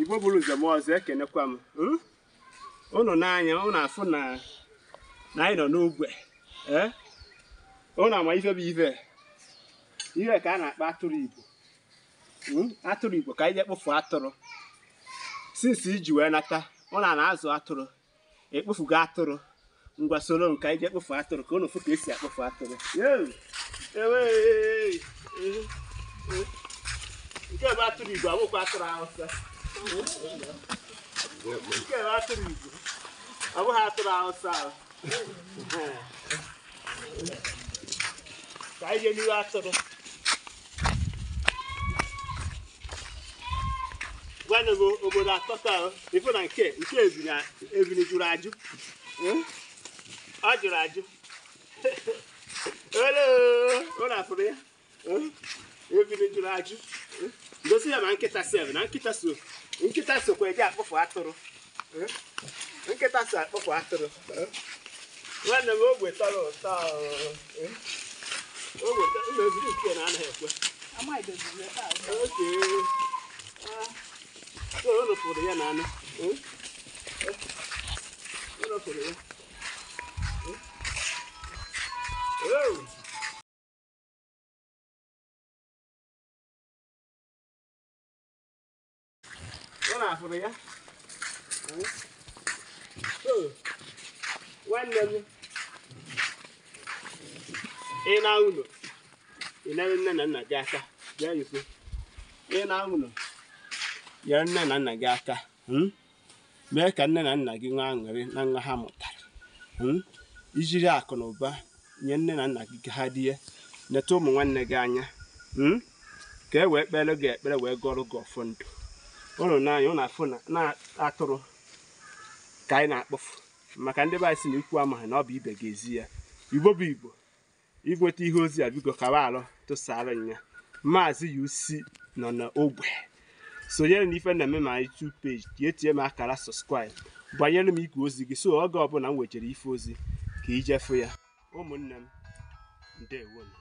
igbo bụrụ njem ọzọ ekenekwa m ụnụ hmm? n'anya ụnụ afụ na na anyị nọ n'ogwe ụnụ ama ife bụ ife ihe ka a na-akpọ atụrụ igbo hmm? atụrụ igbo ka anyị ekpofu atụrụ sinsi iji wee nata ụnụ na-azụ atụrụ ekpofugo atụrụ ngwa soro m anyị jee kpofu atụrụ ka ụnụ fụ ka esi akpofu atụrụ e e, e, nke bụ atụrụ igbo abụkwa atụrụ awụsa ọ bụghị atụrụ awụsa ka anyị atụrụ gwanụ m obodo atọ taa na nke nke ebili jụrụ ajụ ọ jụrụ ajụ ole ụlọ ya ebili jụrụ ajụ osi ya ma nkịta sef na nkịta so nkịta sokwa eji akpụfụ atụrụ eh? nkịta so akpụfụ atụrụ eh? nwanne m ogbe tọrọ ụtọ eh? ogbe meziri nke na anaghị ekwe ụlọ pụrụ ya na anụ ụlọ pụrụ ya afụrụ ya nwanne m ị na ụlọ ịnara nne na nna gị aka bịa ikwu ị na ụlọ nyere nne na nna gị aka mee ka nne na nna gị nwee aṅụrị na nwa ha mụtara ijiri akụ na ụba nye nne na nna gị ka ha die neta ụmụ nwanne gị anya ka e wee kpere gị ekpere wee gọrọ gị ọfọ ndụ ụnụ n'anya ụlọ afụ na atụrụ ka anyị na-akpọfu maka ndị be anyị si na ikwu amaghị na ọ bụ ibe ga-ezi ya igbo bụ igbo igweta ihe ozi a bigo kawa alụ tụsara nya maazị UC nọ n'ogbe sonyere na ife na-eme ma anyị tu peji ka etinye m akara subscribe banyere m ikwu ozi gị so oge ọbụla m nwechara ife ozi ka ijefụ ya ụmụnne m ndewonu